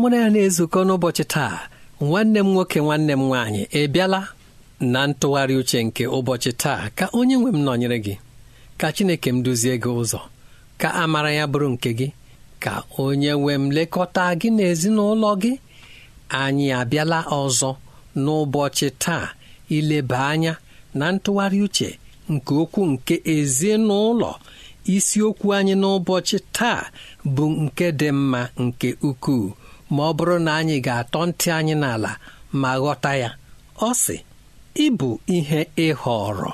mụ na ya na-ezukọ n'ụbọchị taa nwanne m nwoke nwanne m nwaanyị ị bịala na ntụgharị uche nke ụbọchị taa ka onye nwe m nọnyere gị ka Chineke m duzie gị ụzọ ka amara ya bụrụ nke gị ka onye nwe m lekọta gị na ezinụlọ gị anyị abịala ọzọ n'ụbọchị taa ileba anya na ntụgharị uche nke okwu nke ezinụlọ isiokwu anyị n'ụbọchị taa bụ nke dị mma nke ukwuu ma ọ bụrụ na anyị ga-atọ ntị anyị n'ala ma ghọta ya ọ sị ịbụ ihe ịhọrọ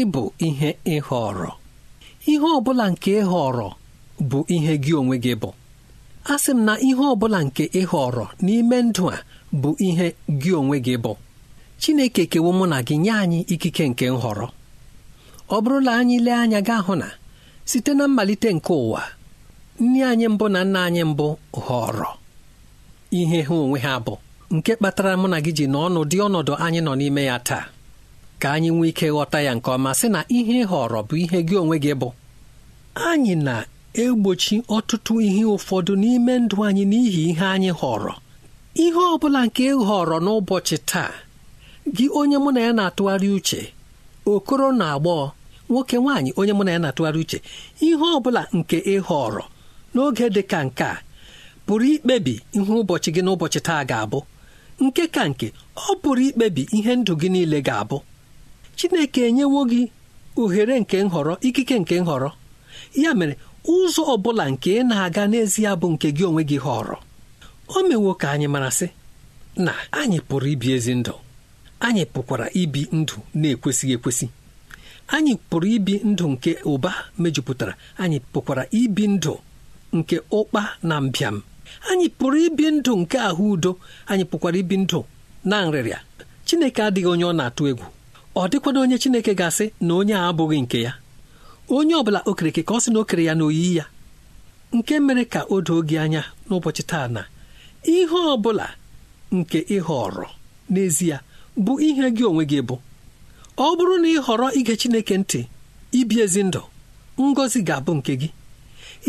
ịbụ ihe ịhọrọ ihe ọ bụla nke ịhọrọ bụ ihe gị onwe gị bụ a sị m na ihe ọ bụla nke ịhọrọ n'ime ndụ a bụ ihe gị onwe gị bụ Chineke kewo mụ na gị nye anyị ikike nke nhọrọ ọ bụrụ na anyị lee anya gaa hụ na site na mmalite nke ụwa nne anyị mbụ na nna anyị mbụ họrọ ihe ha onwe ha bụ nke kpatara mụ na gị ji n'ọnụ dị ọnọdụ anyị nọ n'ime ya taa ka anyị nwee ike ghọta ya nke ọma sị na ihe ịhọrọ họrọ bụ ihe gị onwe gị bụ anyị na-egbochi ọtụtụ ihe ụfọdụ n'ime ndụ anyị n'ihi ihe anyị họrọ ihe ọ bụla nke ịhọrọ n'ụbọchị taa gị onye mụ na ya na-atụgharị uche okoro na agbọghọ nwoke nwaanyị onye mụ na ya na-atụgharị uche ihe ọ bụla nke ị họrọ n'oge dị ka nke a pụrụ ikpebi ihe ụbọchị gị n'ụbọchị taa ga-abụ nke ka nke ọ pụrụ ikpebi ihe ndụ gị niile ga-abụ Chineke enyewo gị ohere nke nhọrọ ikike nke nhọrọ ya mere ụzọ ọ bụla nke ị na-aga n'ezie bụ nke gị onwe gị họrọ o mewo ka anyị mara sị na anyị pụrụ ibi ezi ndụ anyị pụkwara ibi ndụ na-ekwesịghị ekwesị anyị pụrụ ibi ndụ nke ụba mejupụtara anyị pụkwara ibi ndụ nke ụkpa na mbịam anyị pụrụ ibi ndụ nke ahụ udo anyị pụkwara ibi ndụ na nrịrịa Chineke adịghị onye ọ na-atụ egwu ọ dịkwana onye Chineke ga-asị na onye a abụghị nke ya onye ọ bụla okereke ka ọ sị na okere ya na oyiyi ya nke mere ka o doo gị anya n'ụbọchị taa na ihe ọ bụla nke ị họrọ n'ezie bụ ihe gị onwe gị bụ ọ bụrụ na ị họrọ ige Chineke ntị ibi ezi ndụ ngọzi ga-abụ nke gị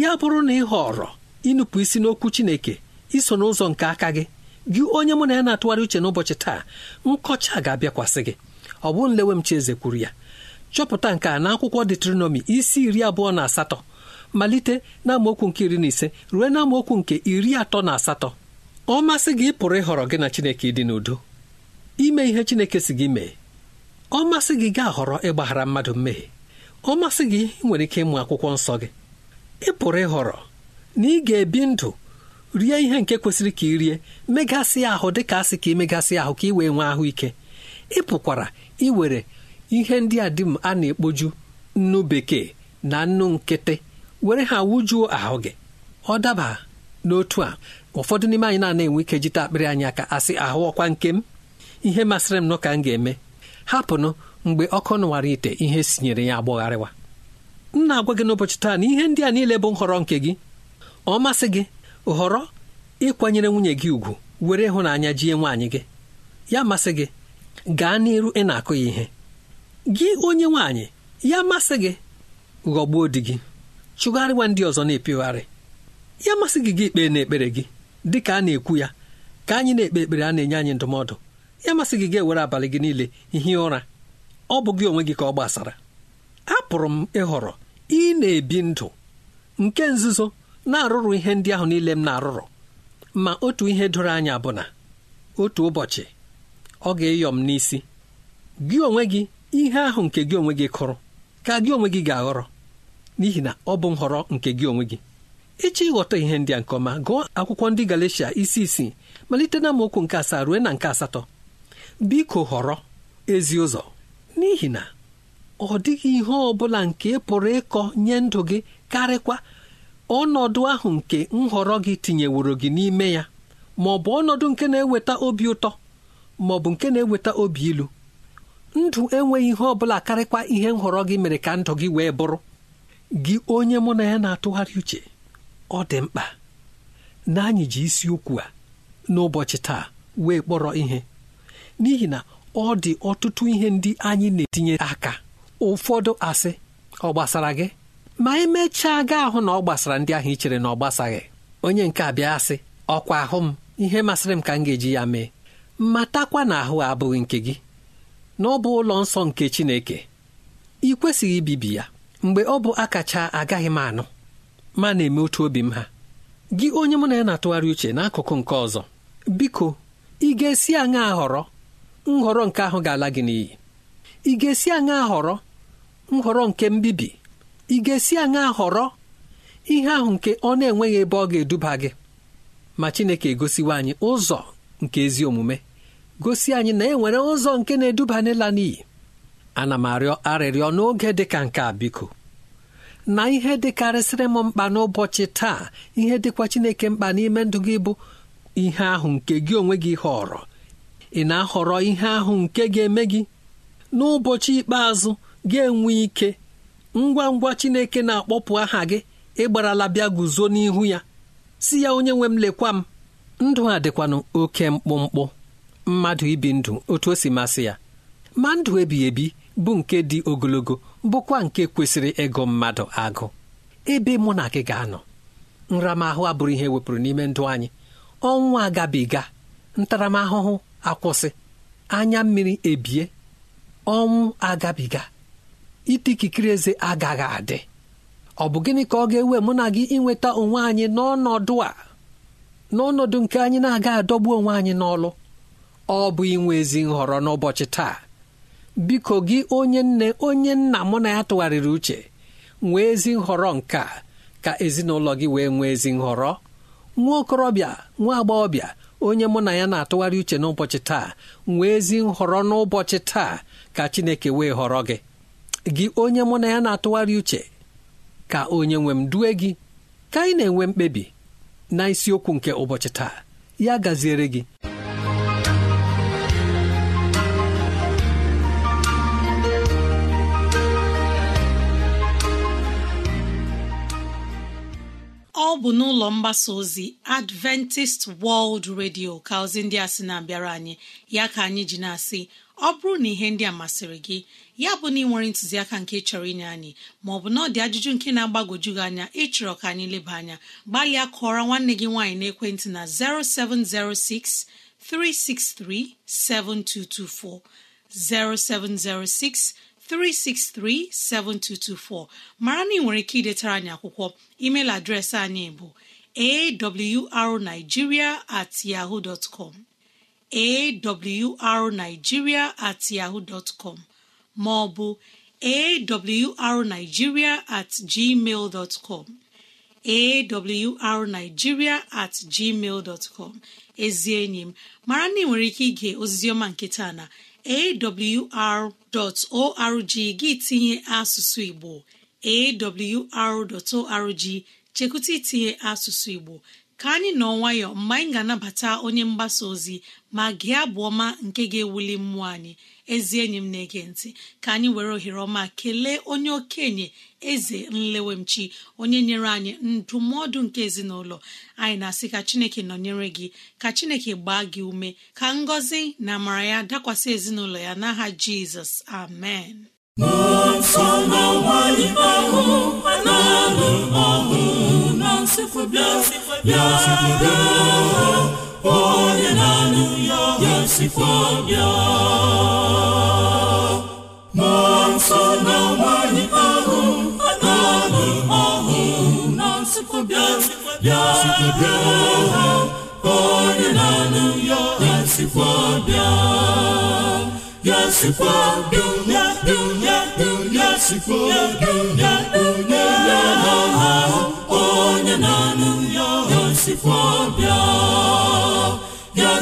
ya bụrụ na ị họrọ ịnụpụ isi n'okwu Chineke iso n'ụzọ nke aka gị gị onye mụ na ya na-atụgharị uche n'ụbọchị taa nkọcha ga-abịakwasị gị ọ bụ nlewe m Chieze kwuru ya chọpụta nke a n'akwụkwọ detronọmi isi iri abụọ na asatọ malite na nke iri na ise ruo na nke iri atọ na asatọ ọ masị gị pụrụ ịhọrọ gị na Chineke ịdị n'udo ime ihe Chineke si gị mee ọ masị gị gaa họrọ ịgbaghara mmadụ mmehie ọ masị gị nwere ike ịmụ akwụkwọ nsọ gị ị pụrụ ịhọrọ na ị ga-ebi ndụ rie ihe nke kwesịrị ka ị rie megasị ahụ dị ka asị ka ị megasị ahụ ka ị wee nwee ahụike ị pụkwara iwere ihe ndị a dị m a na-ekpoju nnu bekee na nnu nkịtị were ha wujuo ahụ gị ọ daba n'otu a ụfọdụ n'ime anyị na-enwe ike jite akpịrị anyị aka asị ahụ ọkwa nke m ihe masịrị m nọ ka m ga-eme hapụnụ mgbe ọkụ nụwara ite ihe sinyere ya agbọgharịwa m na-agwa gị n'ụbọchị taa na ihe ndị a niile bụ nhọrọ nke gị ọ masị gị họrọ ịkwanyere nwunye gị ugwu were ịhụnanya jie nwaanyị gị ya masị gị gaa n'iru ị na-akụ ya ihe gị onye nwaanyị ya masị gị ghọgbuo di gị chụgharịwa ndị ọzọ na-epegharị ya masị gị gị ikpe n'ekpere gị dị ka a na-ekwu ya ka anyị na-ekpe ekpere a na-enye anyị ndụmọdụ ya masị gị ga-ewere abalị gị niile ihi ụra ọ bụ gị onwe gị ka ọ gbasara apụrụ m ịhọrọ ị na-ebi ndụ nke nzuzo na-arụrụ ihe ndị ahụ niile m na-arụrụ ma otu ihe doro anya bụ na otu ụbọchị ọ ga-eyọ m n'isi gị onwe gị ihe ahụ nke gị onwe gị kụrụ ka gị onwe gị ga-aghọrọ n'ihi na ọ bụ nhọrọ nke gị onwe gị ịchọ ịghọta ihe ndị a nke ọma gụọ akwụkwọ ndị Galatia isi isii malite na amaokwu nke asaa ruo na nke asatọ biko họrọ ezi ụzọ n'ihi na ọ dịghị ihe ọ bụla nke pụrụ ịkọ nye ndụ gị karịkwa ọnọdụ ahụ nke nhọrọ gị tinyeworo gị n'ime ya ma ọ bụ ọnọdụ nke na-eweta obi ụtọ ma ọ bụ nke na-eweta obi ilu ndụ enweghị ihe ọ bụla karịkwa ihe nhọrọ gị mere ka ndụ gị wee bụrụ gị onye mụ na ya na-atụgharị uche ọ dị mkpa na anyị ji isiokwu a n'ụbọchị taa wee kpọrọ ihe n'ihi na ọ dị ọtụtụ ihe ndị anyị na-etinye aka ụfọdụ asị ọ gbasara gị ma emechaa gaa ahụ na ọ gbasara ndị ahụ i chere na ọ gbasaghị onye nke a bịa sị ọkwa ahụ m ihe masịrị m ka m ga-eji ya mee matakwa na ahụ abụghị nke gị na ọ bụ ụlọ nsọ nke Chineke ị kwesịghị ibibi ya mgbe ọ bụ akacha agaghị m anụ ma na-eme otu obi m ha gị onye m na ya na-atụgharị uche n'akụkụ nke ọzọ biko ị ga-esi aṅa họrọ nhọrọ nke ahụ ga-ala gị n'iyi ị ga-esi aṅa họrọ nhọrọ nke mbibi ị ga-esi aṅa họrọ ihe ahụ nke ọ na-enweghị ebe ọ ga-eduba gị ma Chineke gosiwa anyị ụzọ nke ezi omume gosi anyị na e nwere ụzọ nke na-eduba n'ịla n'iyi ana m arịọ arịrịọ n'oge dịka nke a biko na ihe dịkarịsịrị m mkpa n'ụbọchị taa ihe dịkwa Chineke mkpa n'ime ndụ gị bụ ihe ahụ nke gị onwe gị họrọ ị na-ahọrọ ihe ahụ nke ga-eme gị n'ụbọchị ikpeazụ ga-enwe ike ngwa ngwa chineke na-akpọpụ aha gị ịgbarala bịa guzo n'ihu ya si ya onye nwe m lekwa m ndụ a dịkwanụ oke mkpụmkpụ mmadụ ibi ndụ otu o si masị ya ma ndụ ebighị ebi bụ nke dị ogologo bụkwa nke kwesịrị ịgụ mmadụ agụ ebe mụ na gị ga-anọ nramahụ abụrụ ihe wepụrụ n'ime ndụ anyị ọnwa agabiga ntaramahụhụ akwụsị anya mmiri ebie ọnwụ agabiga ite ikikere eze agaghị adị ọ bụ gịnị ka ọ ga-ewe mụ na gị inweta onwe anyị n'ọnọdụ a n'ọnọdụ nke anyị na-aga adọgbu onwe anyị n'ọlụ ọ bụ inwe ezi nhọrọ n'ụbọchị taa biko gị onye nne onye nna mụ na ya tụgharịrị uche nwee ezi nhọrọ nke a ka ezinụlọ gị wee nwee ezi nhọrọ nwa okorobịa nwa agbọghọbịa onye mụ na ya na-atụgharị uche n'ụbọchị taa nwee ezi nhọrọ n'ụbọchị taa ka Chineke wee họrọ gị gị onye mụ na ya na-atụgharị uche ka onye nwe m due gị ka anyị na-enwe mkpebi na isiokwu nke ụbọchị taa ya gaziere gị ọ bụ n'ụlọ mgbasa ozi adventist world radio ka ozi ndị a sị na-abịara anyị ya ka anyị ji na-asị ọ bụrụ na ihe ndị a masịrị gị ya bụ na ị nwere ntụziaka nke chọrọ inye anyị maọbụ na ọ dị ajụjụ nke na-agbagwoju gị anya ịchọrọ ka anyị leba anya gbalịa kụọrọ nwanne gị nwaanyị n'ekwentị na 0706 363 7224 0706 363-7224 mara na ị nwere ike idetara anyị akwụkwọ email adreesị anyị bụ awrnigeria at at com ma ọ bụ at gmail dot com at gmail dot com ezi enyi m mara na ị nwere ike ige oziziọma nke taa na awr.org gị tinye asụsụ igbo awr.org chekwụta itinye asụsụ igbo ka anyị nọ nwayọ mgbe anyị ga-anabata onye mgbasa ozi ma gị abụ ọma nke ga-ewuli mmụọ anyị ezi enyi m na-ege ntị ka anyị were ohere ọma kelee onye okenye eze nlewemchi onye nyere anyị ndụmọdụ nke ezinụlọ anyị na-asị ka chineke nọnyere gị ka chineke gbaa gị ume ka ngọzi na amara ya dakwasị ezinụlọ ya n'aha jizọs amen onye na-anụ ya ya bịa nwaanyị ahụ n'ọnụ na nsụpụ bịa onye na-anụ ya sikwa bịa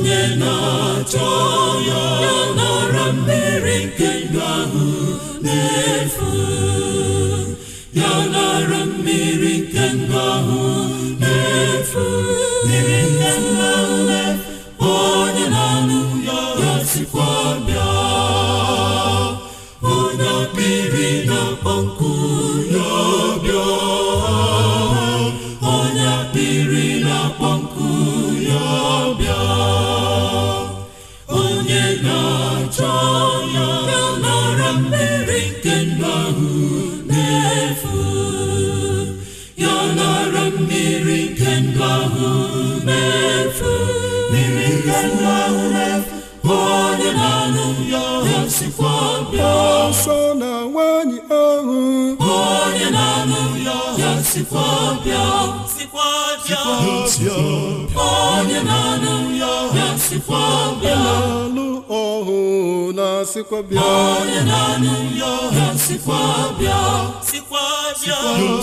onye na-achọ ya nara mmiri nke ndụ ahụ na-efu ya nara mmiri nke ndụ ahụ na-efu mmiri ọsọ na nwanyị ahụ onye na-anụ ya ya sikwa bịa onye na-anụ ya ya sikwa bịa na-alụ ọhụ na-asịkwa bịa onye na-anụ ya ya sikwa bịa onye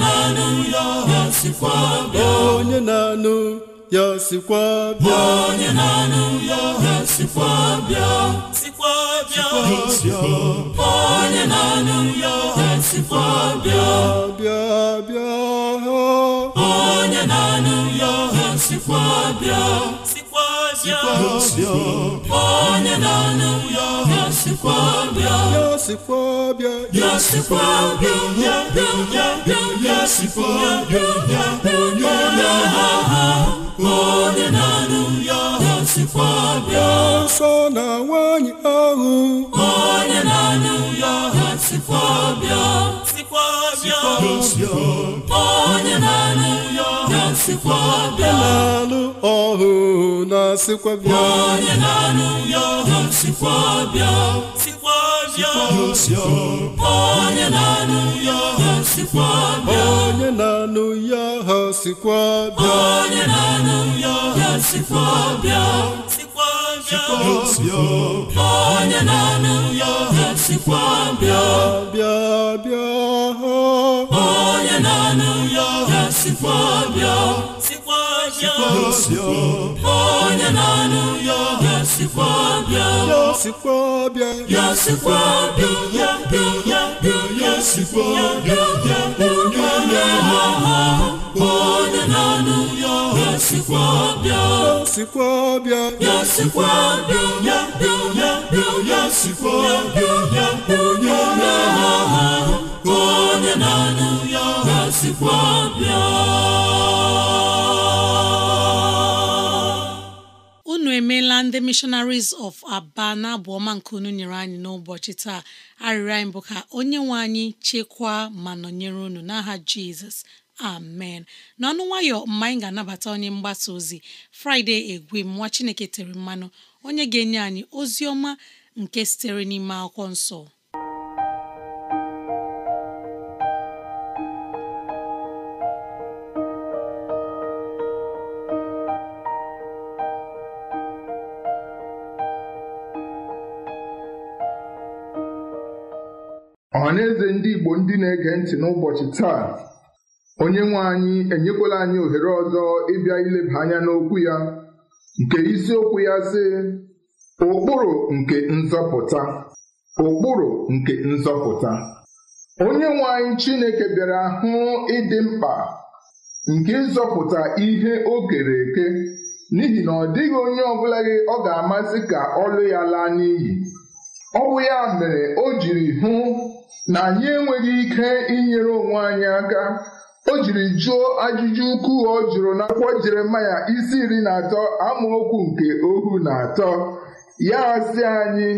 na-anụ ya ya sikwa bịa onye na-anụ ya sikwa bịa onye na-anụ ya ha sikwa bịa sikwa bịa onye na ya ha sikwa bịa bịa bịa onye na-anụ ya ha sikwa bịa onye na ya ha sikwa bịa ya sikwa bịa ya sikwa bịa ya bịa ya bịa ya sikwa bịa ya ha ha n'ọnụ ya ha sikwa bịa nsọ na nwaanyị ahụ onye n'ọnụ ya ha sikwa bịa sikwa bịa onye n'ọnụ ya ha sikwa bịa n'anụ ọhụ na sikwa bịa onye n'ọnụ ya ha bịa onye na-anụ ya ha sikwa bịa onye na-anụ ya ha sikwa bịa bịa bịa ha onye na-anụ ya ha sikwa bịa onye na-anụ ya ha Yosikwa-abịa Yosikwa-abịa Yosikwa-abịa bịa onye na anụ ya Yosikwa-abịa yosikwa ya emeela ndị missionaries of aba na abụ ọma nke unu nyere anyị n'ụbọchị taa arịrị anyị bụ ka onye nwe anyị chekwaa ma nọnyere unu n'aha jizọs amen n'ọnụ nwayọ mma anyị ga-anabata onye mgbasa ozi fraịde egwe nwa chineke tere mmanụ onye ga-enye anyị ozi ọma nke sitere n'ime akwụkwọ nsọ na-eze ndị Igbo ndị na-ege ntị n'ụbọchị taa onye nwe anyị enyekwala anyị ohere ọzọ ịbịa ileba anya n'okwu ya nke isiokwu ya sị ụkpụrụ nke nzọpụta ụkpụrụ nke nzọpụta onye nwe anyị Chineke bịara hụ ịdị mkpa nke ịzọpụta ihe o kere eke n'ihi na ọ dịghị onye ọbụla gị ọ ga-amasị ka ọlụ ya laa n'iyi ọ bụ ya mere o jiri hụ na anyị enweghị ike inyere onwe anyị aka o jiri jụọ ajụjụ ukwu ọ jụrụ n'akwụkwọ Jeremaya isi iri na atọ amaokwu nke ohu na atọ ya asị anyị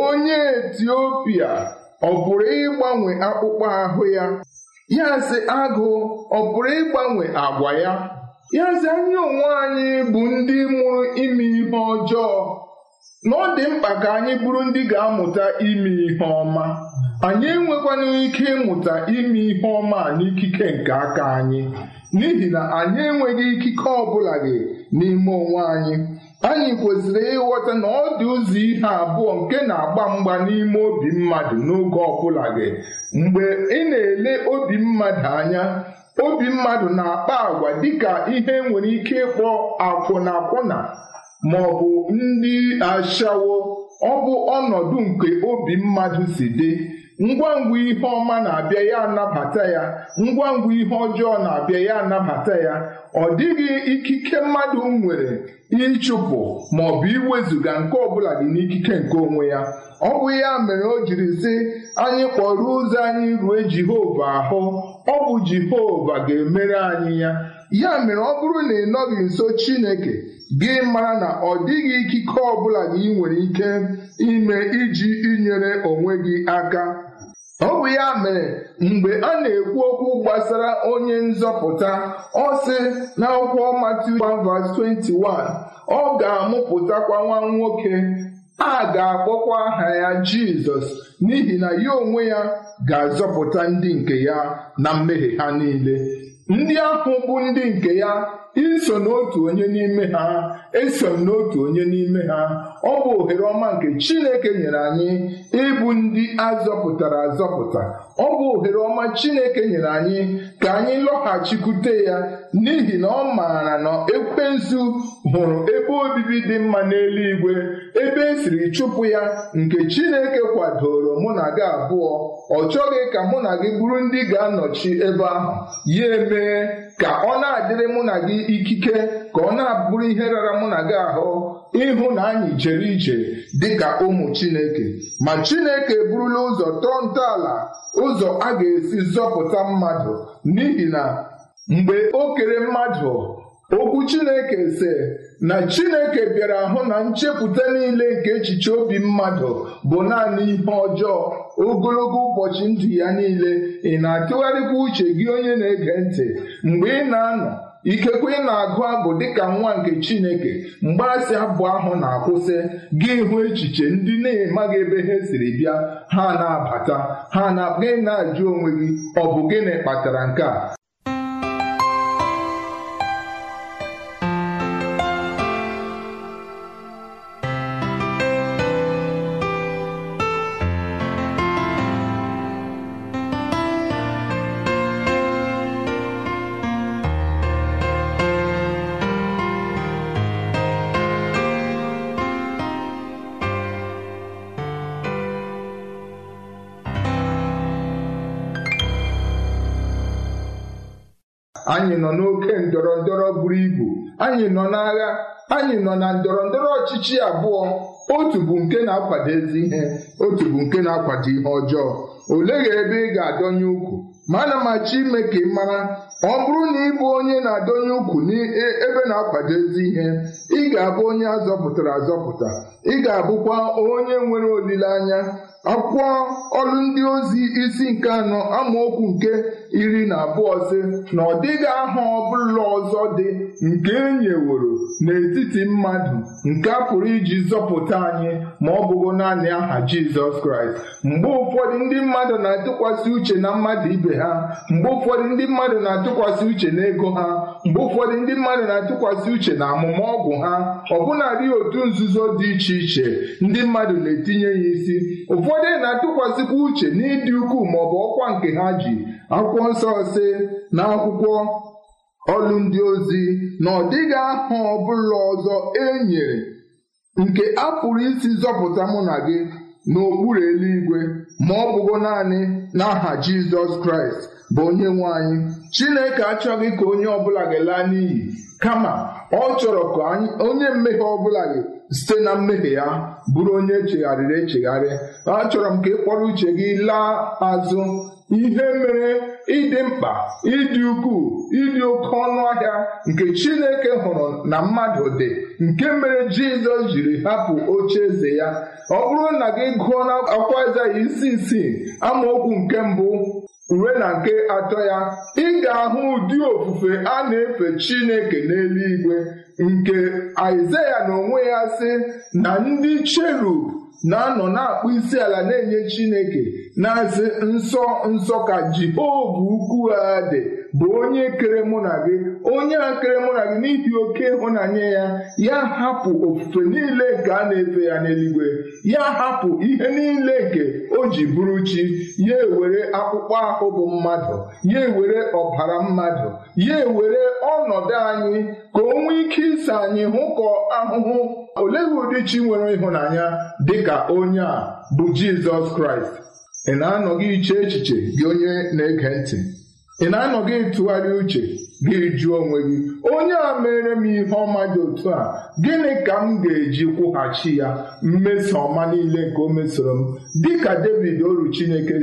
onye Etiopia ọ pụrụ ịgbanwe akpụkpọ ahụ ya ya sị agụ ọ pụrụ ịgbanwe agwa ya ya sị anyị onwe anyị bụ ndị mụrụ ime ihe ọjọọ na ọ dị mkpa ka anyị bụrụ ndị ga-amụta ime ihe ọma anyị enwekwana ike ịmụta ime ihe ọma n'ikike nke aka anyị n'ihi na anyị enweghị ikike ọbụla gị n'ime onwe anyị anyị kwesịrị ịghọta na ọ dị ụzọ ihe abụọ nke na-agba mgba n'ime obi mmadụ n'oge ọbụla gị mgbe ị na-ele obi mmadụ anya obi mmadụ na-akpa agwa dịka ihe nwere ike ịkpọ akwụna-akwụna ma ọ bụ ndị ashawo ọ bụ ọnọdụ nke obi mmadụ si dị ngwa ngwa ihe ọma na-abịa ya anabata ya ngwa ngwa ihe ọjọọ na-abịa ya anabata ya ọ dịghị ikike mmadụ nwere ịchụpụ ma ọ bụ iwezụga nke ọbụla dị n'ikike nke onwe ya ọ bụ ya mere o jiri sị anyị kpọrọ ụzọ anyị rue Jehova ahụ ọ bụ Jehova ga-emere anyị ya ya mere ọ bụrụ na ị nọghị nso Chineke gị mara na ọ dịghị ikike ọbụla gị nwere ike ime iji inyere onwe gị aka Ọ bụ ya mere mgbe a na-ekwu okwu gbasara onye nzọpụta ọ sị n'akwụkwọ Matiu 21, ọ ga-amụpụtakwa nwa nwoke a ga-akpọkwa aha ya Jizọs n'ihi na ya onwe ya ga-azọpụta ndị nke ya na mmehie ha niile ndị ahụ bụ ndị nke ya iso n'otu onye n'ime ha eso m n'otu onye n'ime ha ọ bụ ohere ọma nke Chineke nyere anyị ịbụ ndị azọpụtara azọpụta ọ bụ ohere ọma Chineke nyere anyị ka anyị lọghachikwute ya n'ihi na ọ maara na ekwensu hụrụ ebe obibi dị mma n'eluigwe ebe esiri chụpụ ya nke Chineke kwadoro mụ na gị abụọ ọ chọghị ka mụ na gị bụrụ ndị ga-anọchi ebe ahụ ya emee ka ọ na-adịrị mụ na gị ikike ka ọ na-abụrụ ihe rara mụ na gị ahụ ịhụ na anyị jere ije ka ụmụ Chineke ma Chineke eburula ụzọ tọọ ntọala ụzọ a ga-esi zọpụta mmadụ n'ihi na mgbe o kere mmadụ okwu Chineke se na Chineke bịara hụ na nchepụta niile nke echiche obi mmadụ bụ naanị ihe ọjọọ ogologo ụbọchị ndụ ya niile ị na-atụgharịkwa uche gị onye na-ege ntị mgbe ị na-anọ ikekwe ị na-agụ abụ dịka nwa nke chineke mgbaasị abụ ahụ na-akwụsị gị hụ echiche ndị na-emaghị ebe ha siri bịa ha na-abata ha na gị na-ajụ onwe gị ọ bụ gịnị kpatara nke a anyị nọ n'oke ndọrọ ndọrọ buru ibu anyị nọ n'agha anyị nọ na ndọrọ ndọrọ ọchịchị abụọ otu bụ nke na-akwado ezi ihe otu bụ nke na-akwado ihe ọjọọ oleghị ebe ị ga-adọnye ukwu ma ana machi ime ka ị mara ọ bụrụ na ị bụ onye na-adọnye ukwu n'ebe e-, na-akwado ezi ihe ị ga-abụ onye azọpụtara azọpụta ị ga-abụkwa onye nwere olileanya akwụkwọ ọrụ ndị ozi isi nke anọ amaokwu nke iri na abụọ sị na ọ dịghị aha ọbụla ọzọ dị nke enyeworo n'etiti mmadụ nke a pụrụ iji zọpụta anyị ma ọ bụghị naanị aha Jizọs Kraịst mgbe ụfọdụ ndị mmadụ na-atụkwasị uche na mmadụ ibe ha mgbe ụfọdụ ndị mmadụ na-atụkwasị uche na ego ha mgbe ụfọdụ ndị mmadụ na-atụkwasị uche na amụma ọgwụ ha ha ọbụladị otu nzuzo dị iche iche ndị mmadụ na-etinye ya isi ụfọdụ na-atụkwasịkwa uche n'ịdị ukwuu bụ ọkwa nke ha ji akwụkwọ nsọ si na akwụkwọ ọlụ ndị ozi na ọ dịghị aha ọbụla ọzọ e nyere nke a pụrụ isi zọpụta mụ na gị n'okpuru eluigwe ma ọ bụgo naanị n'aha Jizọs Kraịst bụ onye nwe anyị Chineke achọghị ka onye ọbụla ga-laa n'iyi kama ọ chọrọ ka onye mmehie ọbụla gị site na mmehie ya bụrụ onye echegharịrị echegharị achọrọ m ka ị kpọrọ uche gị laa azụ ihe mere ịdị mkpa ịdị ukwuu ịdị oke ọnụ ahịa nke Chineke hụrụ na mmadụ dị nke mere Jizọs jiri hapụ oche eze ya ọ bụrụ na gị gụọ na akwa Aịzaya isi isii amaokwu nke mbụ uwe na nke atọ ya ị ahụ ụdị ofufe a na-efe Chineke n'eluigwe nke Aịzaya na onwe ya sị na ndị cherub na-anọ na-akpụ isi ala na-enye Chineke na-asị nsọ nsọ ka Jehova ukwu ha dị bụ onye kere mụ na gị onye a kere mụ na gị n'ihi oke ịhụnanya ya ya hapụ ofufe niile nke a na-efe ya n'eluigwe ya hapụ ihe niile nke o ji bụrụ chi ya ewere akpụkpọ ahụ bụ mmadụ ya ewere ọbara mmadụ ya ewere ọnọdụ anyị ka o nwee ike ịsa anyị hụkọ ahụhụ olee ụdị chi nwere ịhụnanya dị ka onye a bụ Jizọs Kraịst ị na-anọghị iche echiche gị onye na-ege ntị ị na-anọghị ịtụgharị uche gị jụọ onwe gị onye a mere m ihe ọma dị otu a gịnị ka m ga-eji kwụghachi ya mmeso ọma niile nke o mesoro m dịka David oru Chineke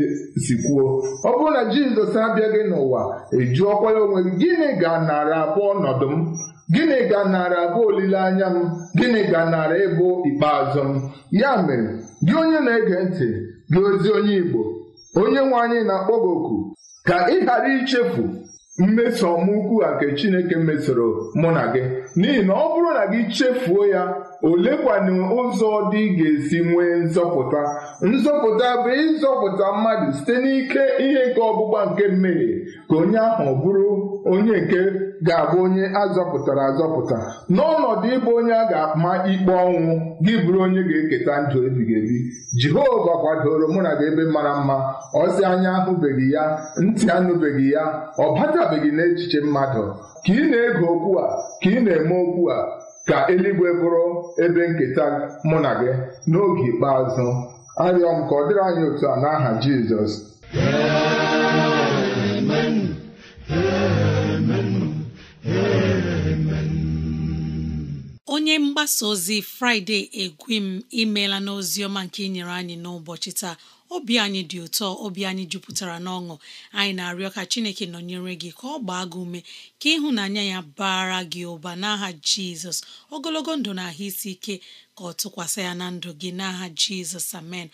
si kwuo ọ bụrụ na Jizọs abịaghị n'ụwa ejụọkwa ya onwe gị gịnị ga narị abụọ ọnọdụ m gịnị ga narị abụọ olileanya m gịnị ga narị ịbụ ikpeazụ m ya mere gị onye na-ege ntị gị ozi onye Igbo onye nwe anyị na-akpọ gị oku ka ị ghara ichefu mmeso a nke Chineke mesoro mụ na gị n'ihi na ọ bụrụ na gị chefuo ya olekwanụ ụzọ dị ga-esi nwee nzọpụta nzọpụta bụ ịzọpụta mmadụ site n'ike ihe nke ọgbụgba nke mmehie ka onye ahụ bụrụ onye nke ga-abụ onye azọpụtara azọpụta n'ọnọdụ ịbụ onye a ga-ama ikpe ọnwụ gị bụrụ onye ga-eketa ndụ ebighị ebi Jehova kwadoro mụ na gị ebe mara mma ọsị anya ahụbeghị ya ntị anụbeghị ya ọ batabeghị n'echiche mmadụ ka ị na-ege okwu a ka ị na-eme okwu a ka eluigwe bụrụ ebe nketa mụ na gị n'oge ikpeazụ arịọ m ka ọ dịrị anyị otu a n'aha Jizọs onye mgbasa ozi fraịde egwim imeela n'ozi ọma nke nyere anyị n'ụbọchị taa obi anyị dị ụtọ obi anyị jupụtara n'ọṅụ anyị na-arịọ ka chineke nọnyere gị ka ọ gbaa gị ume ka ịhụnanya ya bara gị ụba n'aha jizọs ogologo ndụ na ahụ isi ike ka ọ tụkwasị ya na ndụ gị n'aha jizọs amen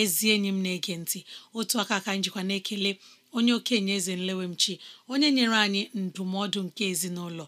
ezi enyi m na-ege ntị otu aka ka njikwa na-ekele onye okenye eze nlewemchi onye nyere anyị ndụmọdụ nke ezinụlọ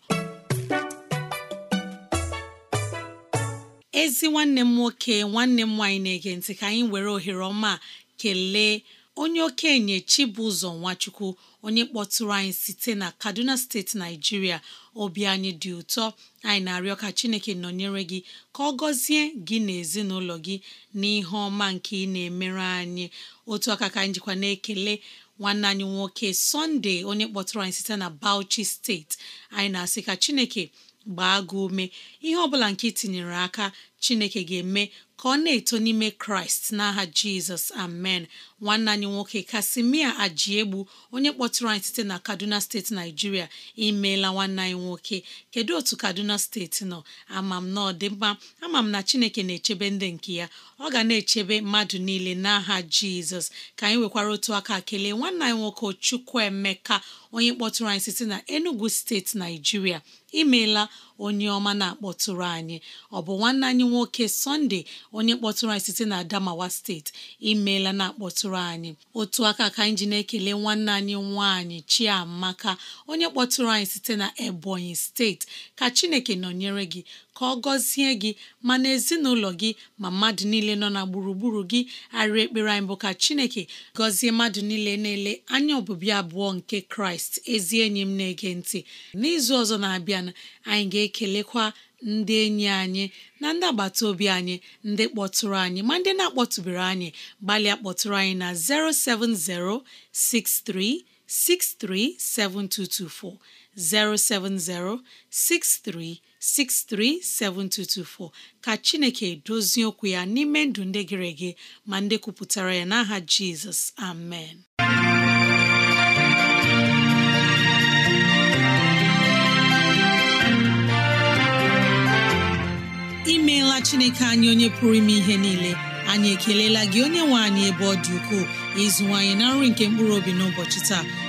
ezi nwanne m nwoke nwanne m nwaanyị na-ege ntị ka anyị were ohere ọma kelee onye okenye Chibụzọ Nwachukwu onye kpọtụrụ anyị site na Kaduna steeti Naijiria obi anyị dị ụtọ anyị na-arịọ ka Chineke nọnyere gị ka ọ gọzie gị na ezinụlọ gị n'ihe ọma nke ị na-emere anyị otu aka ka anyị jikwa na-ekele nwanne anyị nwoke Sunday onye kpọtụrụ anyị site na Bauchi steeti anyị na-asị ka Chineke gbaa gị ume ihe ọbụla bụla nke tinyere aka chineke ga-eme ka ọ na-eto n'ime kraịst n'aha jizọs amen nwanne anyị nwoke kasimia ajiegbu onye kpọtụrụ anyị site na kaduna steeti naijiria imeela nwanne anyị nwoke kedu otu kaduna steeti nọ amam na ọ dị mma amam na chineke na-echebe ndị nke ya ọ ga na-echebe mmadụ niile n'aha jizọs ka anyị nwekwara otu aka kelee nwanne anyị nwoke chukwuemeka onye kpọtụrụ anyị site na enugu steeti naijiria imeela onye ọma na-akpọtụrụ anyị ọ bụ nwanne anyị nwoke sọnde onye kpọtụrụ anyị site na adamawa steeti imeela na-akpọtụrụ anyị otu aka ka anyị ji na-ekele nwanne anyị nwaanyị chiamaka onye kpọtụrụ anyị site na ebonyi steeti ka chineke nọnyere gị ka ọ gọzie gị ma na ezinụlọ gị ma mmadụ niile nọ na gburugburu gị arịa ekpere anyị bụ ka Chineke gọzie mmadụ niile na-ele anya obibi abụọ nke Kraịst ezi enyi m na-ege ntị n'izu ọzọ na-abịa anyị ga-ekelekwa ndị enyi anyị na ndị agbata obi anyị ndị kpọtụrụ anyị ma ndị na-akpọtụbere anyị gbalịa kpọtụrụ anyị na 07063637224 070-6363-7224 ka Chineke dozie okwu ya n'ime ndụ ndị gịrị gị ma ndị kwupụtara ya n'aha Jizọs amen imeela Chineke anyị onye pụrụ ime ihe niile anyị ekelela gị onye nwe anyị ebe ọ dị ukwuu ịzụwanyị na nri nke mkpụrụ obi n'ụbọchị taa